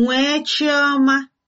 nwee chioma